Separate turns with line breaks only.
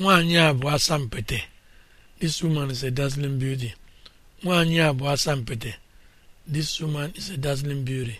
nwaanyị a bụ asampete this woman is a dazzling this woman is a dazzling beauty